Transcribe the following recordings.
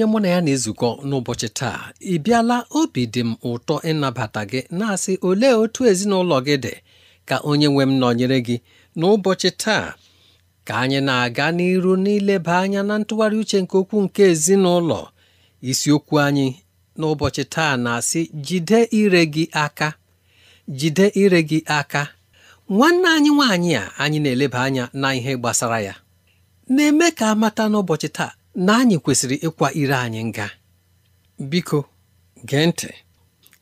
onye mụ na ya na-ezukọ n'ụbọchị taa ị bịala obi dị m ụtọ ịnabata gị na-asị olee otu ezinụlọ gị dị ka onye nwe m nọnyere gị n'ụbọchị taa ka anyị na-aga n'iru n'ileba anya na ntụgharị uche nke okwu nke ezinụlọ isiokwu anyị n'ụbọchị taa na-asị jide ire gị aka jide ire gị aka nwanne anyị nwaanyị a anyị na-eleba anya na ihe gbasara ya na-eme ka a mata n'ụbọchị taa na anyị kwesịrị ịkwa ire anyị nga biko gee ntị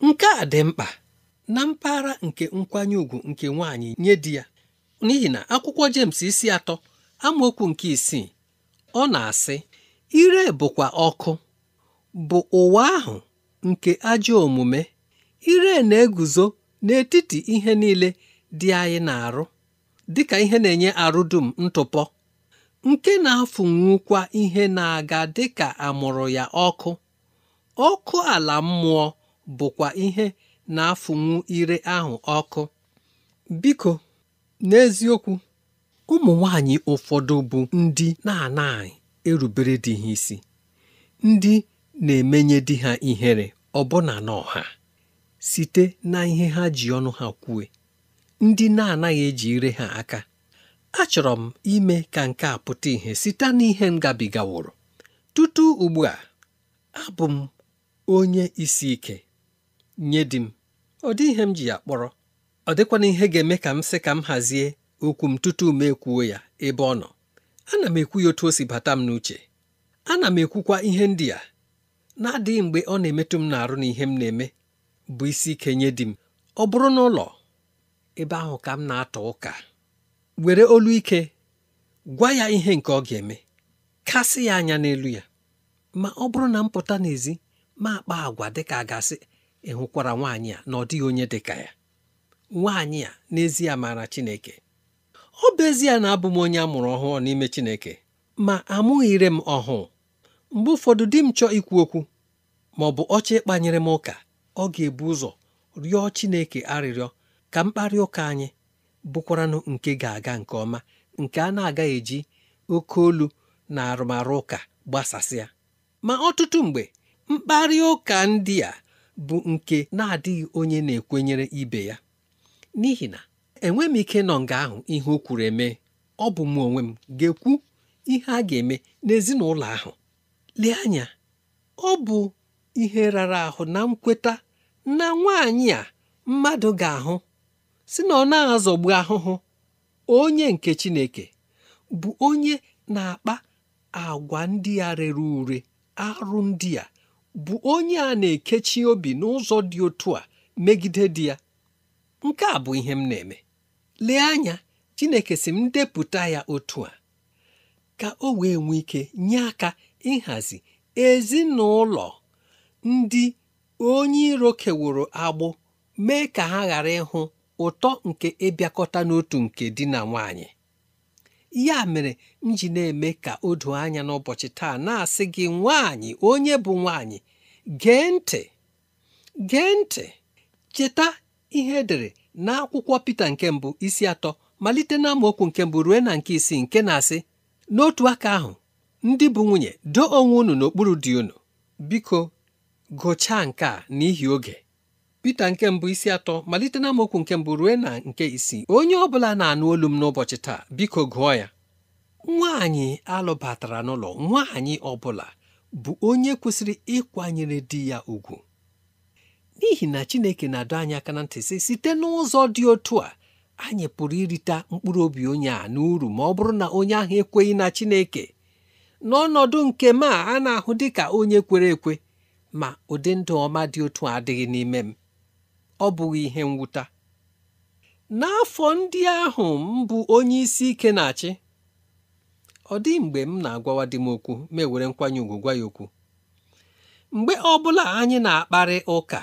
nke a dị mkpa na mpaghara nke nkwanye ùgwù nke nwaanyị nye di ya n'ihi na akwụkwọ James isi atọ amaokwu nke isii ọ na-asị ire bụkwa ọkụ bụ ụwa ahụ nke ajọ omume ire na-eguzo n'etiti ihe niile dị anyị na-arụ dịka ihe na-enye arụ dum ntụpọ nke na-afụnwukwa ihe na-aga dị ka amụrụ ya ọkụ ọkụ ala mmụọ bụkwa ihe na-afụnwu ire ahụ ọkụ biko n'eziokwu ụmụ nwanyị ụfọdụ bụ ndị na-anaghị erubere di ha isi ndị na-emenye di ha ihere ọbụna n'ọha site na ihe ha ji ọnụ ha kwue ndị na-anaghị eji ire ha aka achọrọ m ime ka nke a pụta ìhè site n'ihe m gabigaworo tutu ugbu a abụ m onye isi ike nye di m ọ dị ihe m ji ya kpọrọ ọ dịkwana ihe ga-eme ka m sị ka m hazie okwu m tutu m ekwuo ya ebe ọ nọ ana m ekwu ya otu o si bata m n'uche ana m ekwukwa ihe ndị a na-adịghị mgbe ọ na-emetụ m na-arụ na ihe m na-eme bụ isi ike nye di m ọ bụrụ n'ụlọ ebe ahụ ka m na-atọ ụka were olu ike gwa ya ihe nke ọ ga-eme kasị ya anya n'elu ya ma ọ bụrụ na m pụta n'ezi ma akpa agwa dịka a gasị ịhụkwara nwaanyị a na ọ dịghị onye dịka ya nwaanyị a n'ezie maara Chineke ọ bụ ezie na abụ m onye a mụrụ ọhụụ n'ime Chineke ma amụghịre m ọhụụ mgbe ụfọdụ di m chọọ ikwu okwu ma ọ bụ ọcha ịkpanyere m ụka ọ ga-ebu ụzọ rịọ Chineke arịrịọ ka mkparị ụka anyị bụkwaranụ nke ga-aga nke ọma nke a na aga eji oke olu na arụmarụ ụka gbasasịa ma ọtụtụ mgbe mkparị ụka ndị a bụ nke na-adịghị onye na-ekwenyere ibe ya n'ihi na enweghị m ike nọ nga ahụ ihe o kwuru eme ọ bụ m onwe m ga-ekwu ihe a ga-eme n'ezinụlọ ahụ lee anya ọ bụ ihe rara ahụ na nkweta na nwaanyị a mmadụ ga-ahụ si na ọ na-azọgbu ahụhụ onye nke Chineke bụ onye na-akpa agwa ndị a rere ure arụ ndị a bụ onye a na-ekechi obi n'ụzọ dị otu a megide di ya nke a bụ ihe m na-eme lee anya Chineke si m depụta ya otu a ka o wee nwee ike nye aka ịhazi ezinụlọ ndị onye iro keworo agbụ mee ka ha ghara ịhụ ụtọ nke ịbịakọta n'otu nke di na nwanyị ya mere m ji na-eme ka o doo anya n'ụbọchị taa na-asị gị nwanyị onye bụ nwanyị gee ntị gee ntị cheta ihe edere n'akwụkwọ Pita nke mbụ isi atọ malite na nke mbụ ruo na nke isii nke na-asị n'otu aka ahụ ndị bụ nwunye doo onwe unu n'okpuru dị unu biko gụchaa nke a n'ihi oge Pita nke mbụ isi atọ malite na amaokwu nke mbụ ruo na nke isii onye ọ bụla na-anụ olu m n'ụbọchị taa biko gụọ ya nwaanyị alụbatara n'ụlọ nwaanyị ọ bụla bụ onye kwesịrị ịkwanyere di ya ugwu n'ihi na Chineke na-adọ anyị aka na ntị sị site n'ụzọ dị otu a anyị pụrụ irite mkpụrụ obi onye a n'uru ma ọ bụrụ na onye ahụ ekweghị na Chineke n'ọnọdụ nke m a a na-ahụ dị ka onye kwere ekwe ma ụdị ndụ ọma dị otu a adịghị n'ime m ọ bụghị ihe mwụta n'afọ ndị ahụ m bụ onye isi ike na-achị ọ dị mgbe m na-agwawa di m okwu ma ewere nkwanye ùgwù gwa ya okwu mgbe ọbụla anyị na-akparị ụka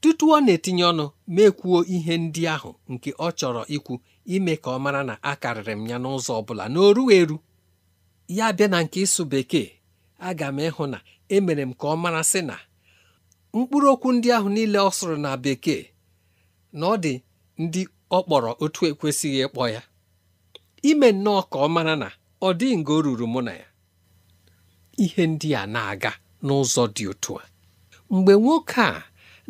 tutu ọ na-etinye ọnụ mekwuo ihe ndị ahụ nke ọ chọrọ ikwu ime ka ọ mara na a karịrị m ya n'ụzọ ọ bụla na oru eru ya bịa na nke ịsụ bekee aga m ịhụ na emere m ka ọ mara sị na mkpụrụ okwu ndị ahụ niile ọ sụrụ na bekee na ọ dị ndị ọ kpọrọ otu ekwesịghị ịkpọ ya ime nnọọ ka ọ mara na ọ dịghị nga o ruru mụ na ya ihe ndị a na-aga n'ụzọ dị otu a mgbe nwoke a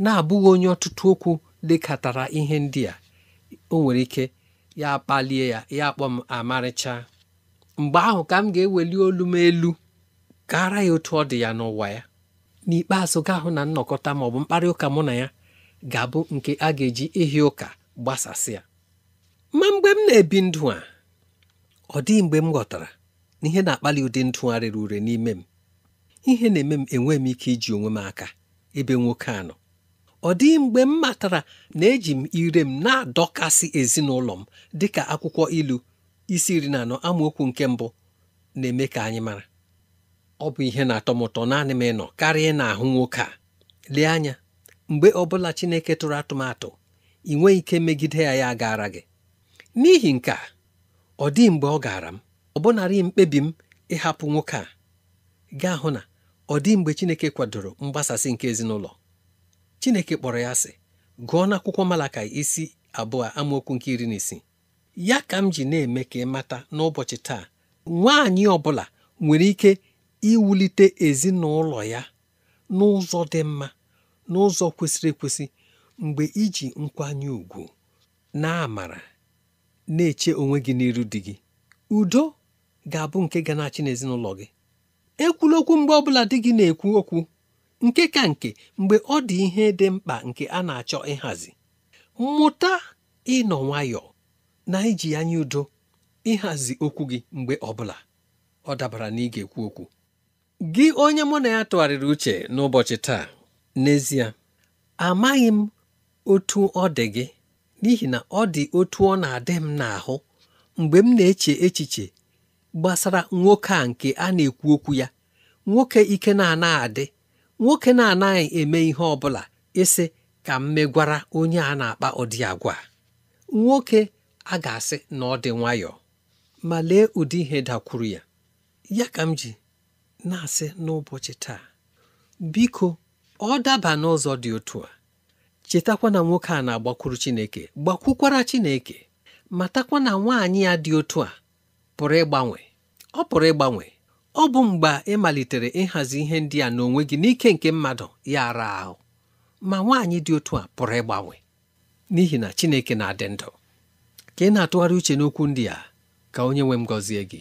na-abụghị onye ọtụtụ okwu lekọtara ihe ndị a o nwere ike ya kpalie ya ya kpọ m amarịcha mgbe ahụ ka m ga-eweli olu m elu gara ya otu ọ dị ya n'ụwa ya n'ikpeazụ ga-ahụ na nnọkọta ma ọ bụ mkparị ụka mụ na ya ga-abụ nke a ga-eji ihi ụka gbasasịa ma mgbe m na-ebi ndụ a ọ dịghị mgbe m ghọtara na ihe na-akpali ụdị rere ure n'ime m ihe na-eme m enwe m ike iji onwe m aka ebe nwoke a nọ ọ dịghị mgbe m matara na eji m ire m na-adọkasị ezinụlọ m dịka akwụkwọ ilu isi iri na anọ amaokwu nke mbụ na-eme ka anyị mara ọ bụ ihe na-atọ m ụtọ naanị m ịnọ karịa ị na-ahụ nwoke a lee anya mgbe ọbụla Chineke tụrụ atụmatụ ị nweghị ike megide ya ya gaara gị n'ihi nke a ọ dị mgbe ọ gaara m ọbụnarị mkpebi m ịhapụ nwoke a gaa hụ na ọ dị mgbe Chineke kwadoro mgbasasị nke ezinụlọ Chineke kpọrọ ya sị gụọ n'akwụkwọ malaka isi abụọ amaokwu nke iri na isi. ya ka m ji na-eme ka ị mata n'ụbọchị taa nwaanyị ọ bụla nwere ike iwulite ezinụlọ ya n'ụzọ dị mma n'ụzọ kwesịrị ekwesị mgbe iji nkwanye ùgwù na amara na-eche onwe gị n'iru di gị udo ga-abụ nke ga na-achị n'ezinụlọ gị ekwula okwu mgbe ọbụla di gị na-ekwu okwu nke ka nke mgbe ọ dị ihe dị mkpa nke a na-achọ ịhazi mụta ịnọ nwayọọ na iji anya udo ịhazi okwu gị mgbe ọbụla ọ dabara na ị ga-ekwu okwu gị onye mụ na ya tụgharịrị uche n'ụbọchị taa n'ezie amaghị m otu ọ dị gị n'ihi na ọ dị otu ọ na-adị m n'ahụ mgbe m na-eche echiche gbasara nwoke a nke a na-ekwu okwu ya nwoke ike na-anaghị adị nwoke na-anaghị eme ihe ọ bụla ịsị ka m megwara onye a na-akpa ụdị agwa nwoke a ga-asị na ọ dị nwayọọ ma lee ụdị ihe dakwuru ya ya ka m ji na-asị n'ụbọchị taa biko ọ daba n'ụzọ dị otu a chetakwa na nwoke a na-agbakwuru Chineke gbakwukwara Chineke matakwa na nwaanyị ya dị otu a pụrụ ịgbanwe ọ pụrụ ịgbanwe ọ bụ mgbe ị malitere ịhazi ihe ndị a n'onwe gị n'ike nke mmadụ ya ara ahụ ma nwaanyị dị otu a pụrụ ịgbanwe n'ihi na Chineke na-adị ndụ ka ị na-atụgharị uche n'okwu ndị a ka onye nwe m gọzie gị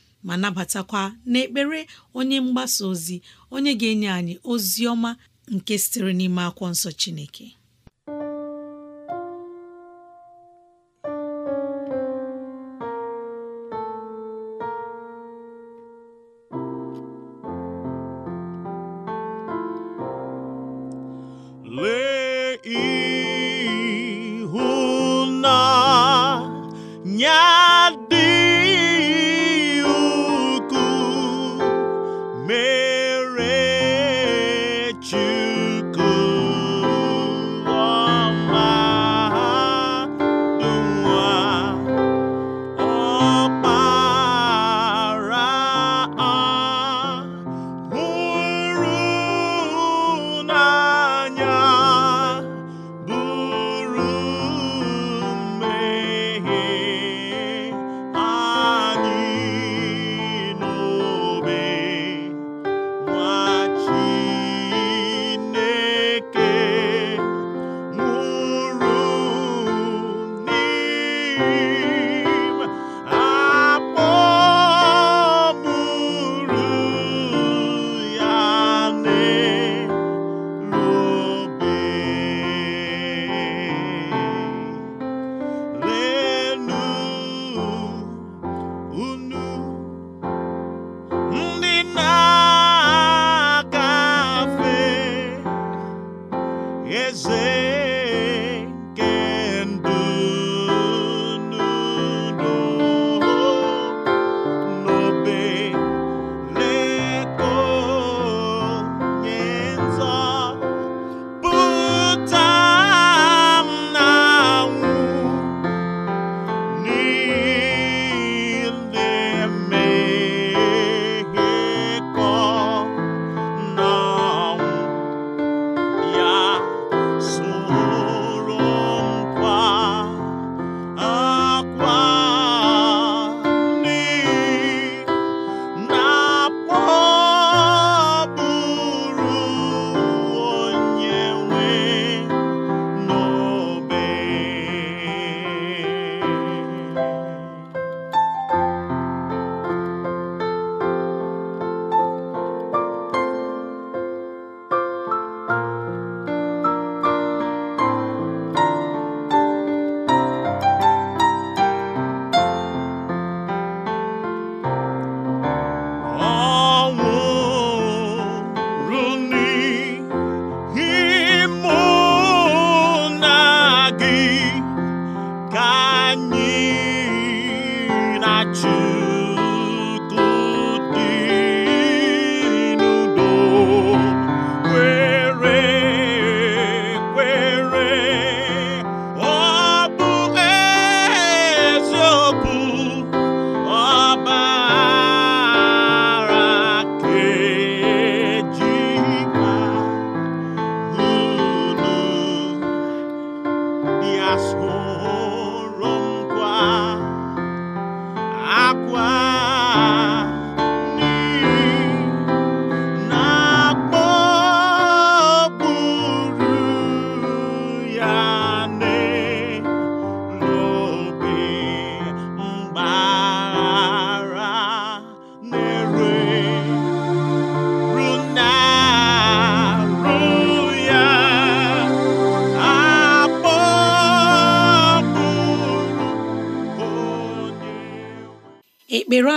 ma nabatakwa n'ekpere onye mgbasa ozi onye ga-enye anyị ozi ọma nke sitere n'ime akwụkwọ nsọ Chineke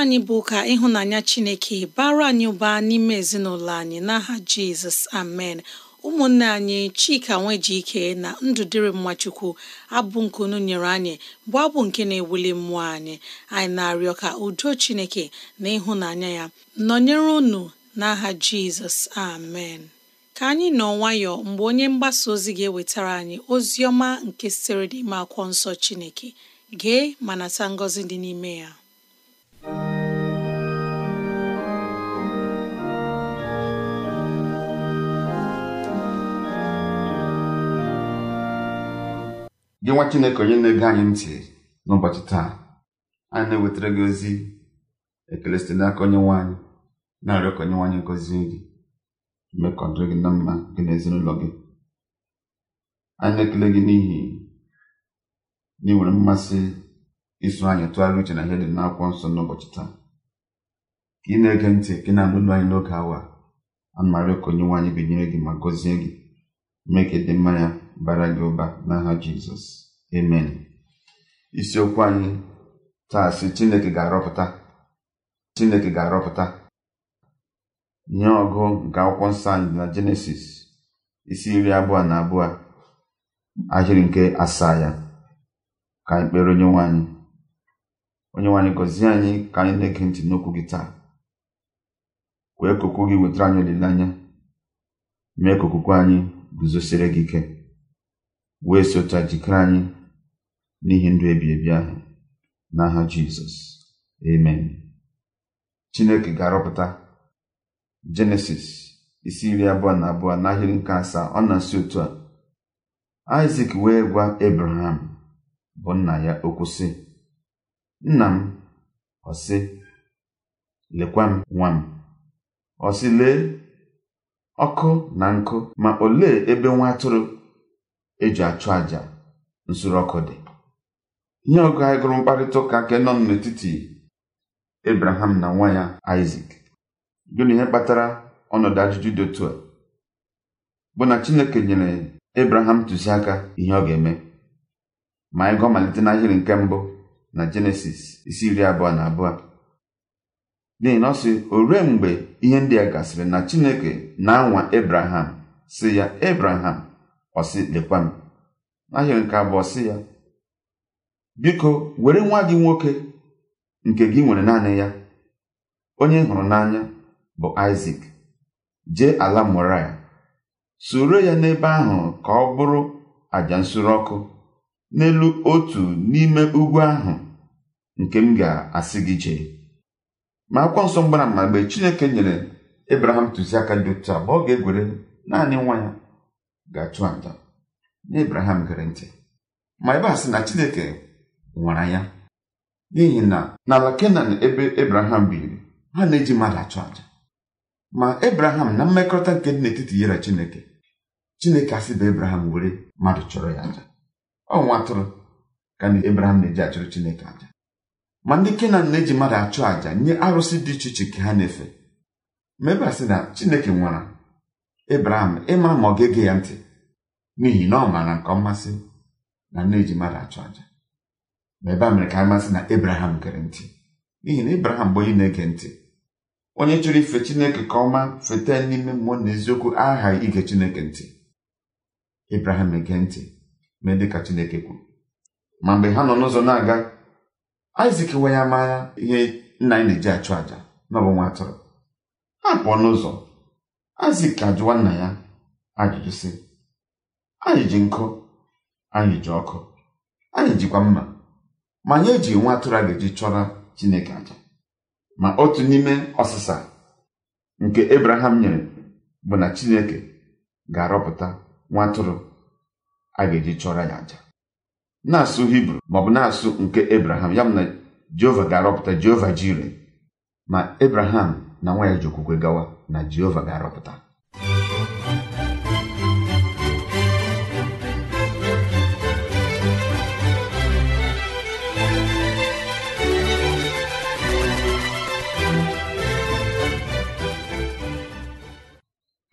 anyị bụ ka ịhụnanya Chineke bara anyị ụba n'ime ezinụlọ anyị n'aha Jizọs amen ụmụnne anyị Chika Nwejike na Ndụdịrị Mmachukwu abụ nke unu nyere anyị bụ abụ nke na-ewuli mmụọ anyị anyị na-arịọ ka udo Chineke na ịhụnanya ya nọnyere unu n'aha Jizọs amen ka anyị nọ nwayọọ mgbe onye mgbasa ozi ga-ewetara anyị ozi ọma nke siri ime akwụkwọ nsọ Chineke gee ma nata ngọzi dị n'ime ya gị nwa chineke onye na-ege anyị ntị n'ụbọchị taa anyị na-ewetara gị ozi ekele site n'aka onye nwe anyị na-arịọ ka onye nwe anyị gọzie gị mee gị na mma gị na ezinụlọ gị anyị na-ekele gị n'ihi na ị nwere mmasị iso anyị tụgharị uche na ihe dị n'akwụkwọ nsọ n'ụbọchị taa ka ị na-ege ntị ka ị na-anụ olu anyị n'oge awa a marịọ ka onye nwe anyị binyere gị ma gọzie gị mee ka ịdị mma ya bara gị ụba n'aha jizọs amen isiokwu anyị taa si chineke ga-arọpụta chineke ga-arọpụta nye ọgụ nke akwụkwọ nsọ anyị na jenesis isi iri abụọ na abụọ ahịrị nke asaa ya ka anyị kpere onye nwanyị onye nwanyị gọzie anyị ka anyị na-ege ntị n'okwu gị taa wee ka gị wetara anyị olileanya mee ka okwukwe anyị guzosiri gị ike wee sota jikere anyị n'ihi ndụ ebi ahụ n'aha jizọs amen chineke ga-arọpụta jenesis isi iri abụọ na abụọ n'ahịrị nke asaa ọ na-asị otu a isak wee gwa ebraham bụ nna ya okwu sị nna m ọsị sị lekwa m nwa m ọ lee ọkụ na nkụ ma olee ebe nwa atụrụ eji achụ àjà nsuru ọkụ dị ihe ọgụ anyị gụrụ mkparịta ụka nke nọ n'etiti Abraham na nwa ya Isaac gịnị ihe kpatara ọnọdụ ajụjụ dị otu a bụ na Chineke nyere Abraham ntụziaka ihe ọ ga-eme ma anyị gụọ malite n'ahịrị nke mbụ na Jenesis isi iri abụọ na abụọ n'ihi na ọ sị o ruo mgbe ihe ndị a gasịrị na Chineke na-anwa Abraham sị ya Abraham ọsị lekwa m nke abụọ sị ya biko were nwa gị nwoke nke gị nwere naanị ya onye hụrụ n'anya bụ isak jee ala moria soro ya n'ebe ahụ ka ọ bụrụ àjà nsure ọkụ n'elu otu n'ime ugwu ahụ nke m ga-asị gị jee ma akwụkwọ nsọ mgbara mgbe chineke nyere ebraham ntụziaka dị otu a ga-egwere naanị nwa ya ga-achụ aja na Ebraham gere ntị ma ebe a sị na Chineke nwara ya n'ihi na n'ala Kenan ebe Ebraham biri ha na-eji mmadụ achụ aja ma Ebraham na mmekọrịta nke dị n'etiti ya na Chineke Chineke bụ Ebraham were mmadụ chọrọ ya aja ọ nwatụrụ. atụrụ ka na Ebraham na-eji achụrụ Chineke aja ma ndị Kenan na-eji mmadụ achụ aja nye arụsị dị iche iche ka ha na-efe ma ebe a sị na Chineke nwara ebraham ịmara ma ọ ga-ege ya ntị n'ihi na ọ maara nke ọmasị na nne ji mmadụ achụ aja ma ebe a mere ka amasị na ebraham gere ntị n'ihi na ebraham bụ onye na-ege ntị onye chọrọ ife chineke ka ọma feta n'ime mmụọ na eziokwu aghaghị ige chineke ntị ebraham ege ntị mee dịka chineke kwuru ma mgbe ha nọ n'ụzọ na-aga isak wee ya mara ihe nna anyị na-eji achụ àja na ọ bụ nwa atụrụ ha pụọ n'ụzọ ka ajụwa nna ya ajụjụ si anyị ji nkụ anyị ji ọkụ anyị jikwa mma ma anyị eji nwa atụrụ a eji chọrọ Chineke aja ma otu n'ime ọsịsa nke Ebraham nyere bụ na Chineke ga-arọpụta nwa atụrụ a ga-eji chọrọ ya aja na-asụ Hibru maọbụ na-asụ nke Ebraham ya na Jehova ga-arọpụta Jehova jire ma Ebraham na nwa ya ji okwukwe gawa na jehova ga-arọpụta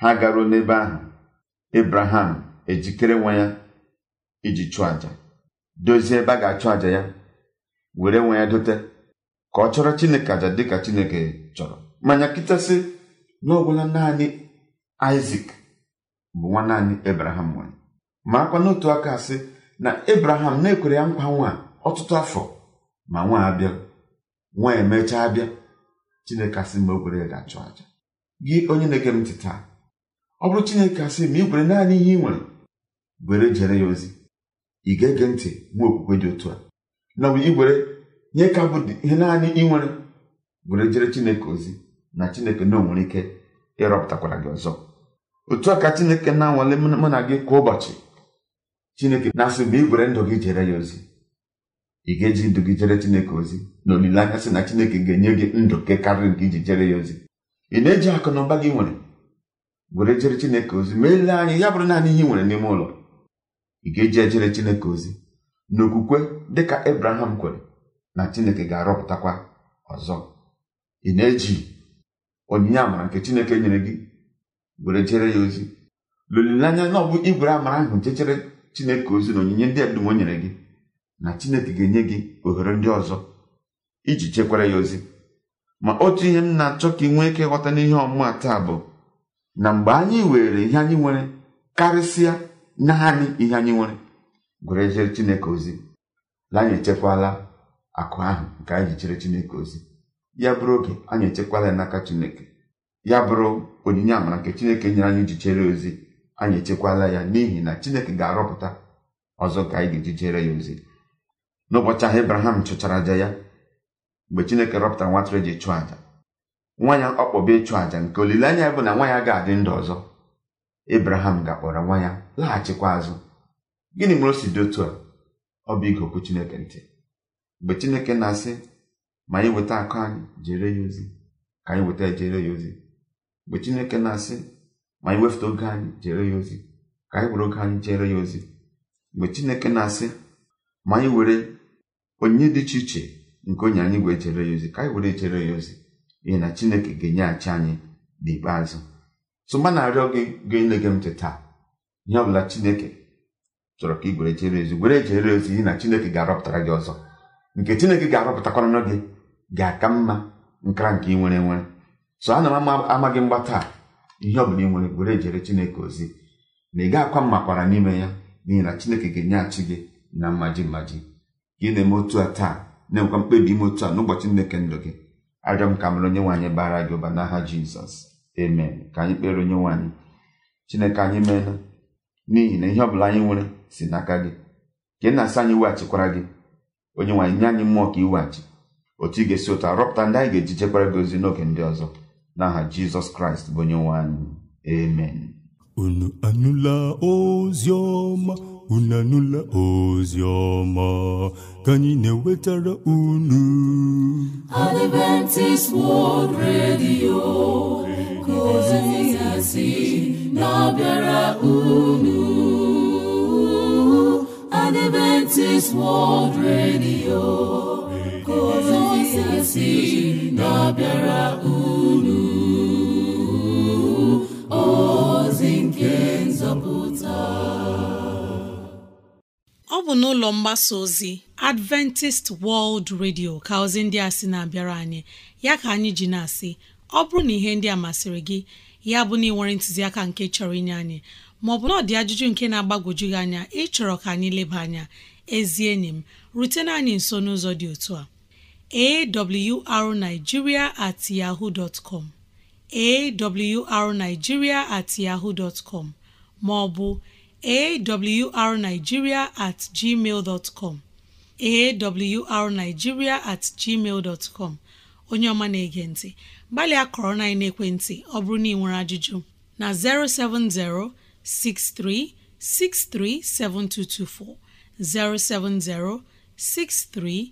ha garuo n'ebe ahụ ebraham ejikere nwa ya iji chụọ aja dozie ebe a ga-achụ aja ya were nwa ya dote ka ọ chọrọ chineke àjà dịka chineke chọrọ manya kịtasị na naanị isak bụ nwa naanị ebraham nwere ma akwa n'otu aka asị na ebraham na-ekwere ya nkwa nwa ọtụtụ afọ ma nwa abịa nwa emechaa abịa chineke asị mgbe o ya ga-achụ aja gị onye na-ege m ntị taa ọ bụrụ chineke asị ma igwere naanị ihe ị nwere were jere ya ozi ị ga-ege ntị nwa okwukwe dị otu a na igwere nye ka bụ ihe naanị ị nwere were jere chineke ozi na chineke na onwere ike ịrọpụtakwara gị ọzọ otu a ka chineke na-anwale mụ na gị kwa ụbọchị chineke na-asị mgbe igwere gwere ndụ gị jere ya ozi ị ga-eji ndụ gị jere chineke ozi na olileanya sị na chineke ga-enye gị ndụ nke karịrị nke iji jere ya ozi ị na-eji akụ na ụba gị nwere gwere jere chineke ozi ma ele anya ya bụrụ naanị ihe nwere n'ime ụlọ ị ga-eji ejere chineke ozi dị dịka Abraham kwere na chineke ga-arọpụtakwa ọzọ ị na-eji onyinye amara nke chineke nyere gị were jere ya ozi l'olileanya na ọ bụ igwere amara ahụ jechere chineke ozi na onyinye ndị edum o nyere gị na chineke ga-enye gị ohere ndị ọzọ iji chekwara ya ozi ma otu ihe m na-achọ ka ị nwee ike ghọta n'ihe ọmụma taa bụ na mgbe anyị were ihe anyị nwere karịsịa naanị ihe anyị nwere gwere jere chineke ozi na anyị echekwala akụ ahụ nke anyị ji chere chineke ozi ya bụrụ oge anyị echekwala ya n'aka chineke ya bụrụ onyinye amara nke chineke nyere anyị iji chere ozi anyị echekwala ya n'ihi na chineke ga-arọpụta ọzọ ka anyị ga-eji chere ya ozi n'ụbọchị ahụ Ibrahim chụchara aja ya mgbe chineke rọpụtara nwatara eji chụọ aja nwa ya ọkpọba ịchụ aja nke olileanya bụ na nwa ya ga-adị ndụ ọzọ Ibrahim ga-akpọrọ nwa ya laghachikwa azụ gịnị mere o si dị otu a ọ bụ ige okwu chineke ntị mgbe chineke na-asị ma anyị weta akụ anyị jere ya ozi ka anyị weta jere ya ozi mgbe chineke na-asị ma anyị wefụta oge anyị jere ya ozi ka anyị were oge anyị jere ya ozi mgbe chineke na-asị ma anyị were onye dị iche iche nke onye anyị wee jere ya ozi ka anyị were jere ya ozi n'ihi na chineke ga-enyeghachi anyị n'ikpeazụ tụma na-arịọ gị gị na-ege m ntị taa ihe ọ bụla chineke chọrọ ka ị gwere jere ozi were jere ozi n'ihi na chineke ga-arọpụtara gị ọzọ nke chineke ga-arọpụtakwanụ gị ga-aka mma nkara nke ị nwere nwere so ana m amaghị mgba ihe ọ bụla ị nwere were ejere chineke ozi na ị ga-akwa makwara n'ime ya n'ihi na chineke ga-enyeghachi gị na mmaji mmaji ka ị na-eme otu a taa na-enwekwa mkpebi ime otu a n'ụbọchị nneke ndụ gị arịọ m ka mere onye nwaanyị bara gị ụba n'aha jizọs amen ka anyị kpere onye nwaanyị chineke anyị meela n'ihi na ihe ọbụla anyị nwere si n'aka gị ka ị na asa anyị weghachikwara gị onye nwaanyị nye anyị mmụọ ka iweghachi otu ị ga-esi ụta rọpụta ndị anyị ga-eji chekwara gị n'oge ndị ọzọ n'aha jizọs kraịst bụ onye nwe anyị amen unu anụla ozi ọma unu anụla ozi ọma ka anyị na-ewetara unu Adventist World Radio ka na-abịara unu Adventist World Radio ka ọ bụ n'ụlọ mgbasa ozi Adventist World Radio ka ozi ndị a si na-abịara anyị ya ka anyị ji na-asị ọ bụrụ na ihe ndị a masịrị gị ya bụ na ị nwere ntụziaka nke chọrọ inye anyị maọbụ na ọ dị ajụjụ nke na-agbagwoju gị anya ịchọrọ ka anyị leba anya ezi enyi m rutena anyị nso n'ụzọ dị otu a awrnigeria at yahoo dot com awrnigeria at yahoo dot com maọbụ awrnigeria at gmail dot com awrnigeria at gmail dot com onye ọma na-ege ntị gbalịa kọrọ na ekwentị ọ bụrụ na ị nwere ajụjụ na 07063637224 07063